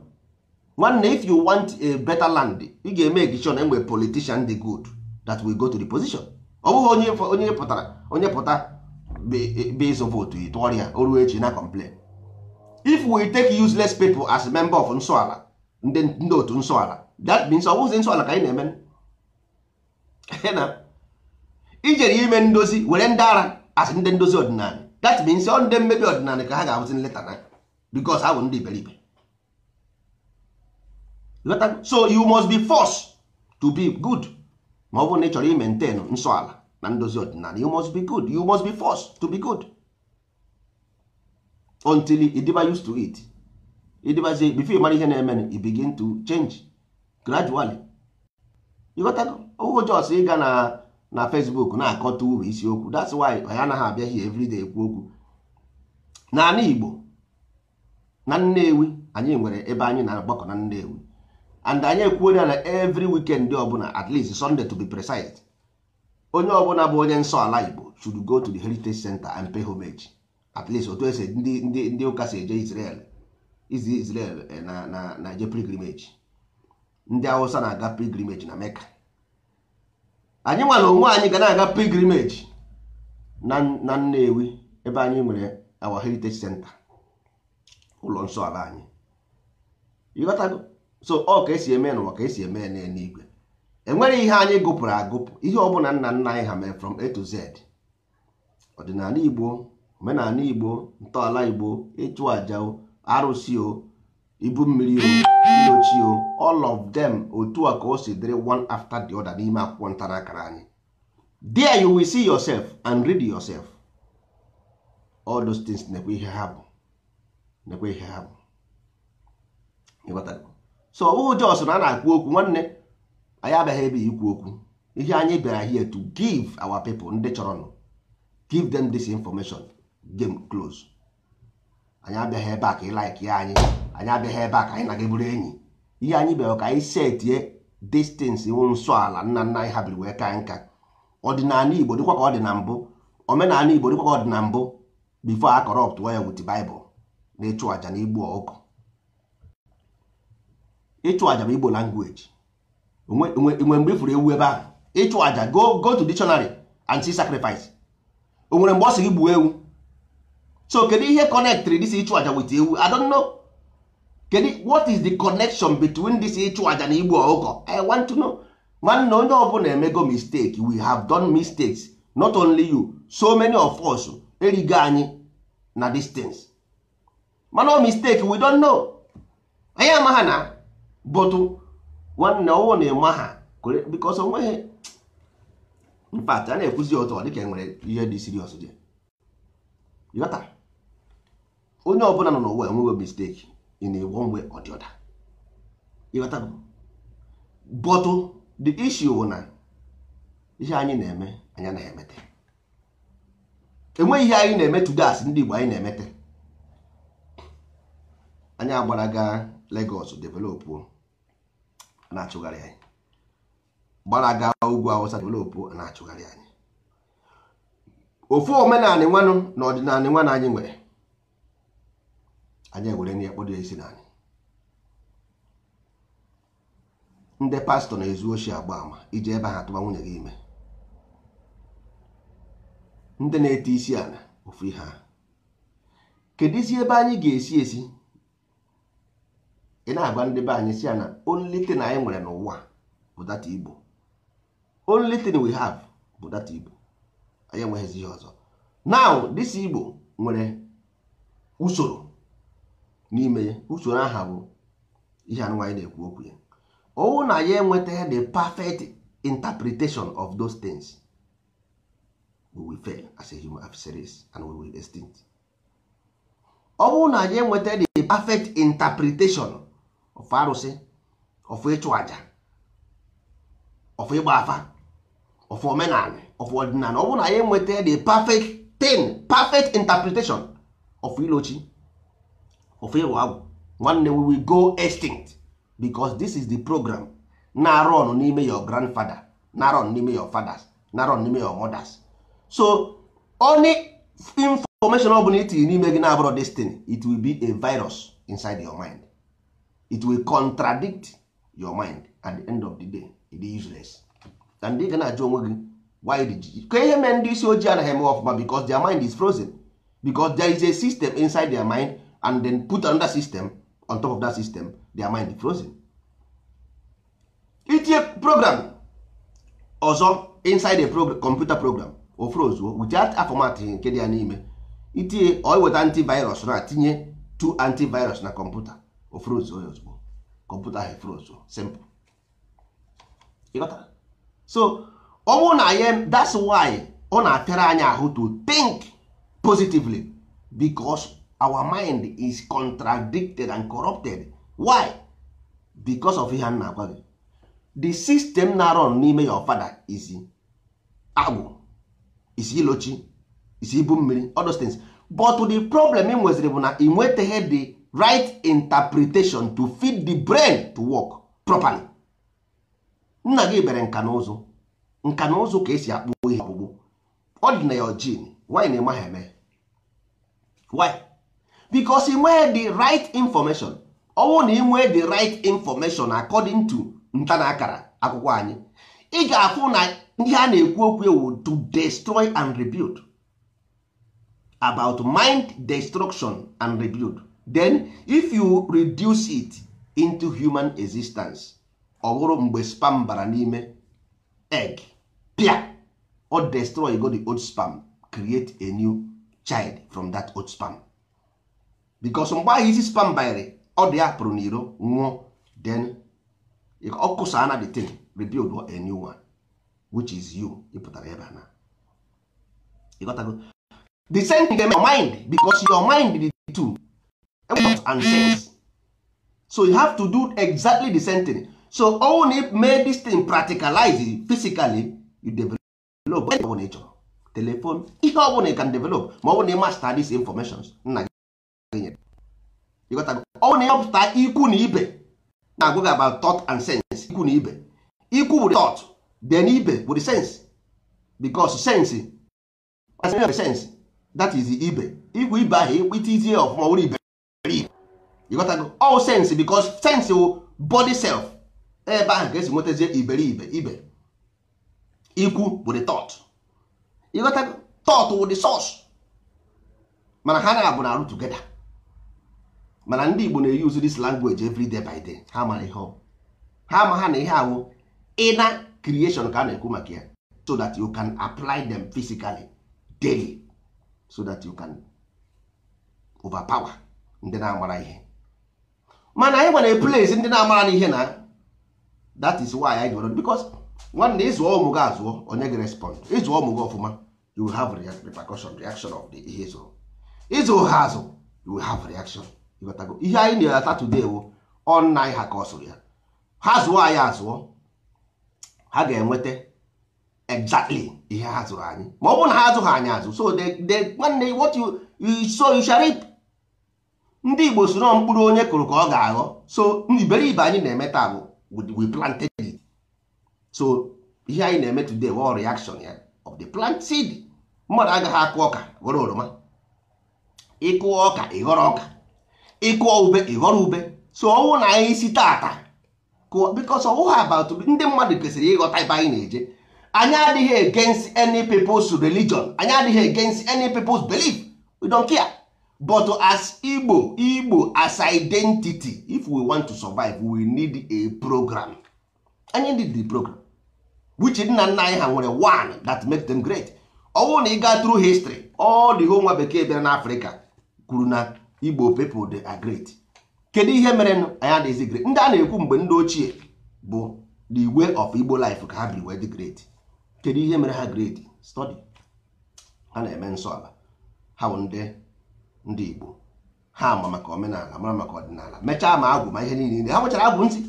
nwanne if you want a better land ị ga-eme egichon enwe politician the good that we go to the position ọ bụghị onye onye pụtara onye pụta base votu tụọrọ ya o echi na complain if we take useless people as member of nsọala ndị otu nsọala that means ọ bụghịzi nsọala ka anyị na-eme ijere ime ndozi were ndị ara asị ndị ndozi ọdịnala that means ọ ndị mmebi ọdịnala ka ha ga-abụzi nleta na because ha bụ ndị iberibe so you must be forced to be good ma ọ bụrụ na ị chọrọ imentain nsọ ala na ndozi ọdịnala you must be good you must be forced to be good until ịdịba used to it say before ịmara ihe na-eme you begin to change gradually ịghọtago owo jos ịga na na facebook na-akọta uru isiokwu that's why anyị anaghị abịaghị everyday ekwu okwu igbo na nnewi anyị nwere ebe anyị na-agbakọ na nnewi and anyị ekwuola na every weekend ọbụla at least sunday to be precise onye ọbụla bụ onye nsọ ala igbo should go to the heritage center and pay homage at least otu esi ndị ụka si eje israel izi israel eh, na na na eje ndị awụsa na-aga pilgrimage na mecca anyị nwere onwe anyị ga na-aga pilgrimage na nnewi ebe anyị nwere our heritage center ụlọ nsọ anyị so ọ ka esi eme n'ụwa ka esi eme n'eluigwe enwere ihe anyị gụpụrụ agụpụ ihe ọ ọbụla nna nna anyị ha mere from a to z ọdịnala igbo omenala igbo ntọala igbo ịchụ aja arụsị ibu mmiri o ochie o all of them otu a ka o si dịrị one after the other n'ime akwụkwọ ntara akara anyị there you will see yourself and read yourself all those things nekwa ihe ha bụ nekwa ihe ha bụ so ọ bụghị jos na a na-akwu okwu nwanne anyị abịaghị ebe ikwu okwu ihe anyị bịara here to give our people ndị nụ give them this information game close anyị abịaghị ebe a ka ị like ya anyị anyị abịaghị ebe a ka anyị na gị enyi ihe anyị bịara ka anyị setie distance iwu nsọ ala nna nna anyị ha biri wee ka nka ọdịnala igbo dịkwa ka ọ dị na mbụ omenala igbo dịkwa ka ọ dị na mbụ bifo a kọrọpt ya wit baịbụl na ịchụ aja na igbu ọkụ ịchụ aja bụ igbo langweji onwe mgbe ifuru ewu ebe ahụ ịchụ aja go go to dictionary and see sacrifice o nwere mgbe ọ sị gị gbuo ewu so kedu ihe kọnektrị dịsi ịchụ aja wit ewu I kedu what is the connection between this ịchụ aja na igbu ọkụkọ i want to know nwanne onye ọbụla emego mistake we have done mistakes not only you so many of us erigo anyị na distance mana mistake we don't know anyị amaghị na bụtụ nwanne ọwụ na-eme ha because onweghị mpat a na-ekwuzi ụtọ dịka enwere ihe dị serious dị onye ọbụla nọ n'ụwa enweghị mistake in a one way or the other ịghọtago but oh, the issue bụ oh, na ihe anyị na-eme anyị eh? anaghị emete enweghị ihe anyị na-eme tudas ndị Igbo anyị na-emete eh? anyị agbaraga gaa Lagos developụ na-achụgharị anyị gbara gaa ugwu Awụsa developụ oh, na-achụgharị anyị ofu omenanị nwanụ na ọdịnala nwanne anyị nwere anyị ewere na ya na anyị ndị pastọ na-ezu oshi agba ama iji ebe ha tụba nwunye gị ime ndị na-ete isi ala ofu ihe a kedu isi ebe anyị ga-esi esi ị na-agwa ndị be anyị si ya na only thing anyị nwere n'ụwa bụ data igbo only thing we have bụ data igbo anyị enweghịzi ihe ọzọ now dịsi igbo nwere usoro n'ime ya usoro aha bụ ihe anụnwa na-ekwu okwu ya ọwụ na ya enweta the perfect interpretation of those things we will fail as a human race and we will extinct ọ bụrụ na ya enweta the perfect interpretation of arụsị of ịchụ aja of ịgba afa of omenala of ọdịnala ọ na ya enweta the perfect thing perfect interpretation of ilochi ofe ịghọ agwụ nwanne we will go extinct because this is the program na-arụ n'ime your grandfather na-arụ ọnụ n'ime your fathers na-arụ n'ime your mothers so only information ọ bụla i tinye n'ime gị na-abụrụ destiny it will be a virus inside your mind it will contradict your mind at the end of the day it dey useless and ị ga na-ajụ onwe gị why did you ka ihe mee ndị isi ojii anaghị eme ọfụma because their mind is frozen because there is a system inside their mind and then put another system on top of that system their mind frozen itinye program ọzọ inside a program, computer program o frozuo without a nke dị ya n'ime itinye ọ antivirus na tinye two antivirus na computer o frozuo ya ozugbo kọmputa ahụ frozuo simple so ọ bụrụ na ya that's why ọ na-apịara anya ahụ to think positively because our mind is contradicted and corrupted why because of ihe nna agwa gị the system na run n'ime your father is agbụ is ilochi is ibu mmiri other things but the problem ị nweziri bụ na ị nwetaghị the right interpretation to feed the brain to work properly nna gị bere nka na nka na ụzụ ka esi akpụ ihe ọkpụkpụ ọ dị na your gene why na-eme ha eme why bicos ị nwee the right information ọnwụ na ị nwee the right information according to nta na akara akwụkwọ anyị ị ga-afụ na ihe a na-ekwu okwu ewu to destroy and rebuild about mind destruction and rebuild then if you reduce it into human existence ọ mgbe spam bara n'ime egg pia or destroy go the old spam create a new child from that old spam because mgbe ahụ isi spam banyere ọ dị ya pụrụ n'iro nwụọ then ọkụsa na the thing rebuild a new one which is you ịpụtara ebe na ịghọtago the same thing your mind because your mind dị two and sense so you have to do exactly the same thing so own it make this thing practicalize physically you develop when you chọrọ telephone ihe ọ bụla you can develop ma ọ bụ na ị master these information nna ọ na ịhọpụta ikwu na ibe na-agwa gị about thought and sense ikwu na ibe ikwu bụ thought then ibe bụ the sense because sense sense that is ibe ikwu ibe ahụ ikpitizie ọfụma were ibe ịghọtago all sense because sense wụ body self ebe ahụ ga-esi nwetazie iberibe ibe ikwu bụ the thought ịghọtago thought wụ the source mana ha na-abụ na arụ together mana ndị Igbo na-eyuzu this language every day by day ha mara ihe ha ma ha na ihe awụ ịna creation ka a na-ekwu maka ya so that you can apply them physically daily so that you can overpower ndị na-amara ihe mana anyị nwere place ndị na-amara n'ihe na that is why anyị gwere because nwanne ịzụọ ụmụ gị azụọ onye gị respond ịzụọ ụmụ gị ọfụma you will have repercussion reaction of the ihe ịzụrụ ịzụ ha azụ you will have reaction ihe anyị na-ata today wụ anyị ha ka ọ sụrụ ya ha zụọ anyị azụọ ha ga-enweta exactly ihe ha zụrụ anyị ma ọ bụrụ na ha azụghị anyị azụ so nwanne what so you ndị Igbo soro mkpụrụ onye kụrụ ka ọ ga-aghọ so iberibe anyị na-eme taa bụ we planted it so ihe anyị na-eme today wụ reaction ya of the plant seed mmadụ agaghị akụ ọka ghọrọ oroma ịkụ ọka ịghọrọ ọka ịkụọ ube ịghọrọ ube so ọnwụ na anyị isi tata kụọ bikos ọwụghị abatụ ndị mmadụ kwesịrị ịghọta ebe anyị na-eje anyị adịghị against any people's religion anyị adịghị against any people's belief we don't care but as igbo igbo as identity if we want to survive we need a program anyị need the program which nna nna anyị ha nwere one that make them great ọnwụ na ị through history all the whole nwa bekee bịara n'afrịka kwuru na igbo people they are great kedu ihe mere anyị adịghịzi great ndị a na-ekwu mgbe ndị ochie bụ the way of igbo life ka ha biri wee dị great kedu ihe mere ha great study ha na-eme nsọ ala ha bụ ndị ndị igbo ha ma maka omenala mara maka ọdịnala mechaa ma agwụ ma ihe niile ha nwechara abụ ntị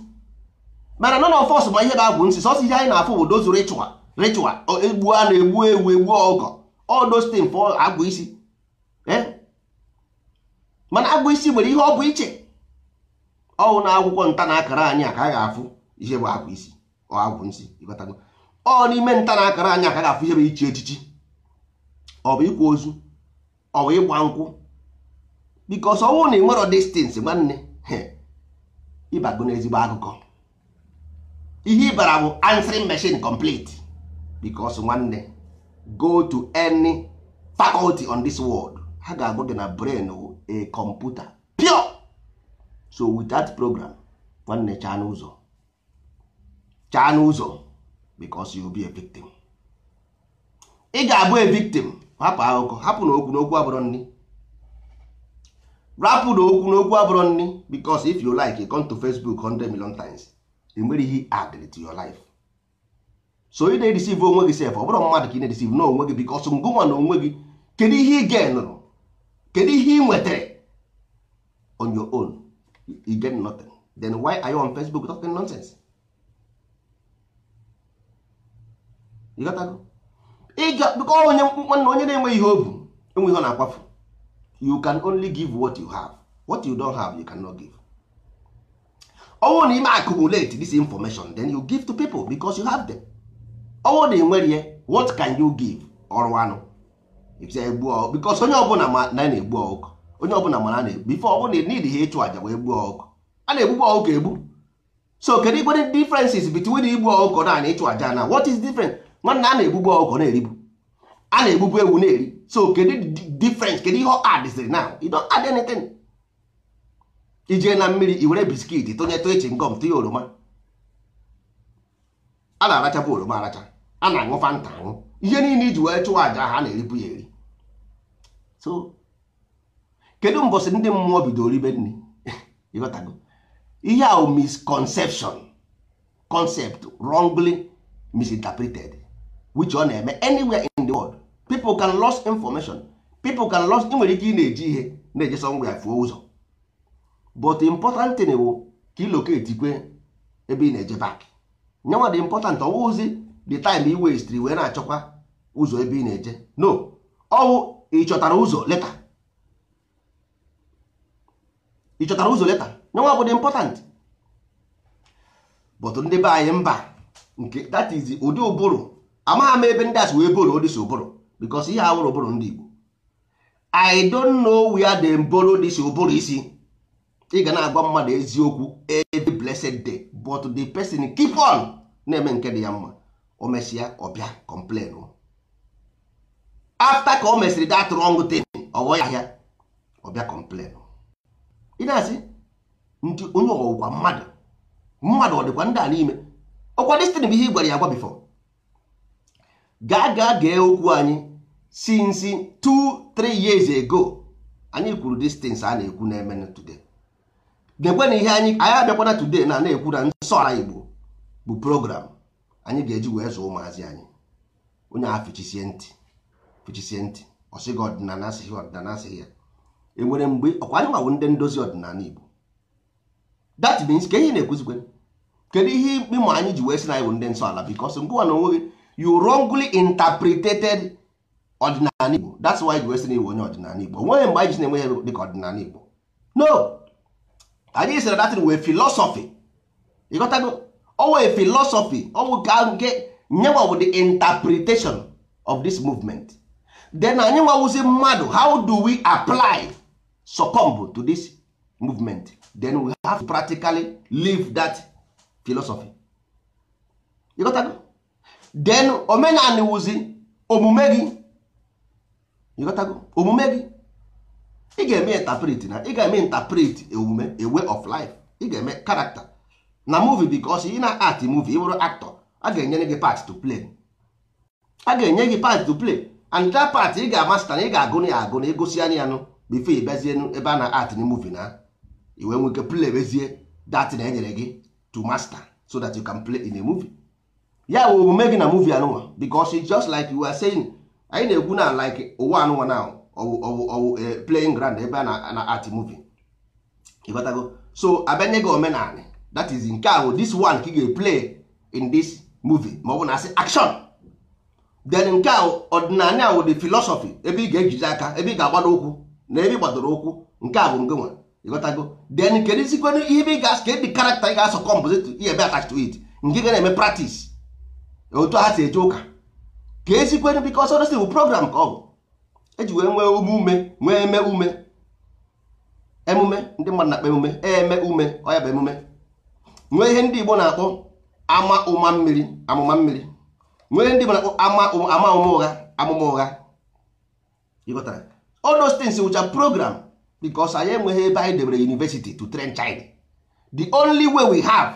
mana nọ na ma ihe na-abụ ntị sọsọ ihe anyị na-afụ bụ dozu ritual ritual egbu a na-egbu ewu egbu ọgọ all those things agwụ isi mana agụ isi nwere ihe ọ bụ iche ọwụ na akwụkwọ nta na akara anyị a ka a ga-afụ ihe bụ abụ isi ọ n'ime nta na akara anyị a ka a ga-afụ ihe bụ iche echichi ọ bụ ịkwa ozu ọ bụ ịgba nkwụ bikos ọnwụ na distins nwanne ịbago akụkọ ihe ịbara bụ complet bikos nwanne go to any faculty on this world ha ga-agụ gị na brain a computer pure so with that program nwanne chaa n'ụzọ chaa n'ụzọ because you be a victim ị ga-abụ a victim hapụ akụkọ hapụ n'okwu n'okwu abụrụ nni rapụ n'okwu n'okwu abụrụ nni because if you like come to Facebook 100 million times enwere ihe add to your life so ị na receive onwe gị sef ọ bụrụ mmadụ ka ị na-edisive n'onwe gị because ngụnwa na onwe gị kedu ihe ị ga-enụrụ kedu ihe ị nwetara on your own you get nothing then why are you on Facebook talking nonsense ịga bụkọ onye nwanne onye na-enweghị ihe o bu enwe ihe ọ na-akwafu you can only give what you have what you don't have you cannot give ọnwụ na ime accumulate this information then you give to people because you have them ọnwụ na enwere ihe what can you give ọrụ anụ because onye ọbụla ma na na-egbu ọkụ onye ọbụla ma na na-egbu ife ọbụla n'idi ha ịchụ àjà wee gbuo ọkụ a na-egbukwa ọkụ egbu so kedu igwere differences between igbu ọkụkọ na na ịchụ aja na what is different nwanne a na-egbugbu ọkụ na-eribu a na-egbugbu ewu na-eri so kedu difference kedu ihe adịsịrị adịziri na you don't add anything ijee na mmiri i were biskit tụnye tụechi ngọm tinye oroma a na-arachapụ oroma aracha a na aṅụ fanta aṅụ ihe niile iji wee chụwa aja ha na-eribu ya eri so kedu mbọsị ndị mmụọ bidoro ribe nri ịghọtago ihe ahụ misconception concept wrongly misinterpreted which ọ na-eme anywhere in the world people can lose information people can ị nwere ike ị na-eji ihe na-eje sọngwa ya fuo ụzọ but important bụ ka ị ebe ị na-eje back nyanwa dị important the time i westri wee na-achọkwa ụzọ ebe ị na-eje no ọwụ ị chọtara ụzọ leta ị chọtara ụzọ leta nyenwa bụ dị important but ndị be anyị mba nke that is ụdị ụbụrụ amaghị m ebe ndị asị wee boro this ụbụrụ because ihe awụrụ ụbụrụ ndị Igbo I don't know where the borrow dịsi ụbụrụ isi ị ga na-agwa mmadụ eziokwu every blessed day but the person keep on na-eme nke dị ya mma o mesịa ọ bịa complain after ka o mesịrị that wrong thing ọghọ ya ahịa ọbịa complain ị na-asị ndị onye ọgwụgwa mmadụ mmadụ ọ dịkwa ndị a n'ime ọkwa destin bụ ihe ị gwara ya agwa bifo gaa gaa gee okwu anyị since two three years ago anyị kwuru distance a na-ekwu na-eme today na-ekwe na ihe anyị anyị abịakwana today na na-ekwu na nsọ ala Igbo bụ program anyị ga-eji wee zụọ ụmụazị anyị onye a fichisie ntị fichisie ntị ọsịghị ọdịnala asịghị ọdịnala asịghị ya enwere mgbe ọkwa anyị nwawo ndị ndozi ọdịnala Igbo that means ka ihe na-ekwuzikwe kedu ihe ikpe ma anyị ji wee sị na anyị bụ ndị nsọ ala because ngụwa na onweghị you wrongly interpreted ọdịnala Igbo that's why ji wee sị na iwe onye ọdịnala Igbo onweghị mgbe anyị ji na-enwe ya dịka ọdịnala Igbo no anyị sịra datin wee philosophy ịghọtago ọwụ philosophy ọwụ ka nke nyewa bụ the interpretation of this movement then anyị nwawụzi mmadụ how do we apply succumb to this movement then we have to practically live that philosophy you got that? then omenani wụzi omume gị you got omume gị ị ga-eme interpret na ị ga-eme interpret omume e a e way of life ị ga-eme character na movie bikos ị na-at movie ị bụrụ aktọ a ga-enye gị part to play a ga-enye gị part to play and that part ị ga-amasta na ị ga-agụ na ya agụ na egosi anya ya nụ bifo ịbazienu ebe a na-at na muvi na iwe nweke play bezie dat na enyere gị to master so that you can play in a movie ya bụ omume gị na muvi anụnwa bikos just like you are saying anyị na egwu na like ụwa anụnwa na ọwụ eh, playing ground ebe a na at muvi ịghọtago so abịanye gị omenala that is nke ahụ this one ka ị ga play in this movie ma ọ bụ na asị action then nke ahụ ọdịnala ahụ dị ebe ị ga-ejizi aka ebe ị ga-agbado ụkwụ na ebe ị gbadoro ụkwụ nke a bụ nke nwa ịghọtago then kedu isikwenụ ihe ebe ị ga kedị karakta ị ga-asọ compose ebe attach to it nke ga na-eme practice otu ha si eje ụka ka esikwenụ bikos ọdọsi bụ program ka ọ bụ eji wee nwee ume ume nwee eme ume emume ndị mmadụ na-akpa emume e eme ume ọ ya bụ emume nwee ihe ndị Igbo na-akpọ ama ụma mmiri amụma mmiri nwee ihe ndị Igbo na-akpọ ama ama ụma ụgha amụma ụgha ịghọtara all those things wụcha program because anyị enweghị ebe anyị debere university to train child the only way we have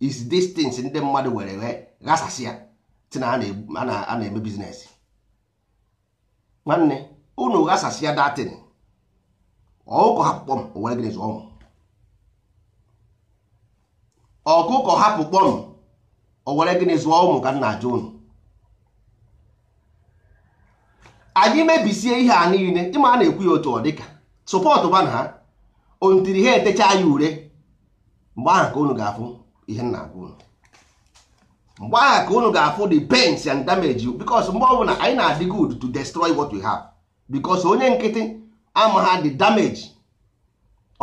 is these things ndị mmadụ were wee ghasasịa si na a na-eme biznes nwanne unu ghasasịa datin ọkụ akpụkpọ m were gịnị zụọ ọkụkọ hapụ kpọm o were gịnị zụọ ụmụ ka m na-ajụ unu anyị mebisie ihe a niile ịma a na-ekwu ya otu ọ dịka sọpọtụ ba na ha ontiri ha etechaa ya ure mgbe ahụ ka unu ga-afụ ihe nna agwa unu mgbe ahụ ka unu ga-afụ the pains and damage you because mgbe ọbụla anyị na-adị good to destroy what we have because onye nkịtị ama ha the damage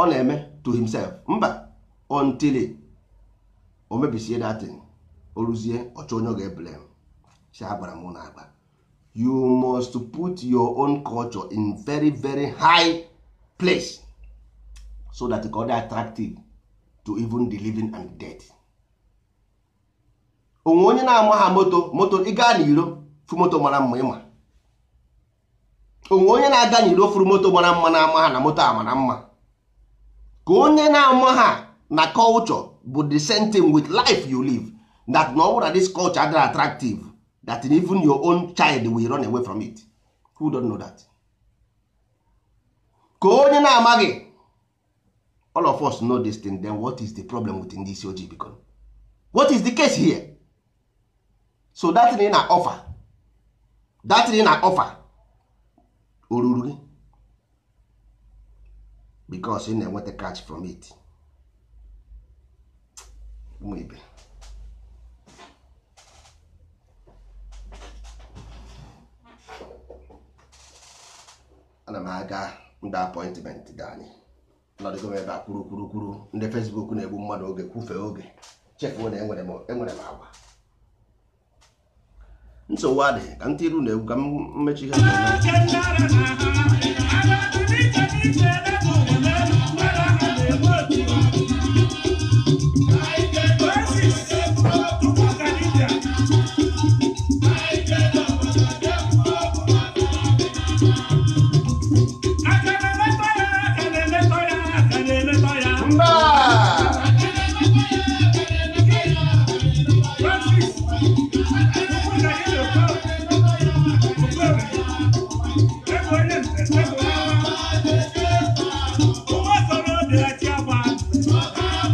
ọ na-eme to himself mba until o mebisie datin o ruzie ọchọ onye ọ ga-eblem si agbara m na agba you must put your own culture in very very high place so that ka ọ dị attractive to even the living and dead. onwe onye na-ama ha moto moto ịga n'iro fu moto mara mma ịma onwe onye na-aga n'iro furu moto mara mma na-ama ha na moto ama na mma ka onye na-ama ha na culture bụ the same thing with life you live that na ọ this culture adịghị attractive that even your own child will run away from it who don't know that ka onye na-amaghị all of us know this thing then what is the problem with ndị isi ojii biko what is the case here so that thing na offer that thing na offer oruru gị because ị na-enweta catch from it ụmụ ibe ana m aga ndị apọịntmentị dị anyị nọdụgo m ebe a kwuru kwuru kwuru ndị fesbuk na-egbu mmadụ oge kwụfee oge chefuo na enwere m agwa nsogbu adị ka ntị iru na-egwu ka mmechi ha.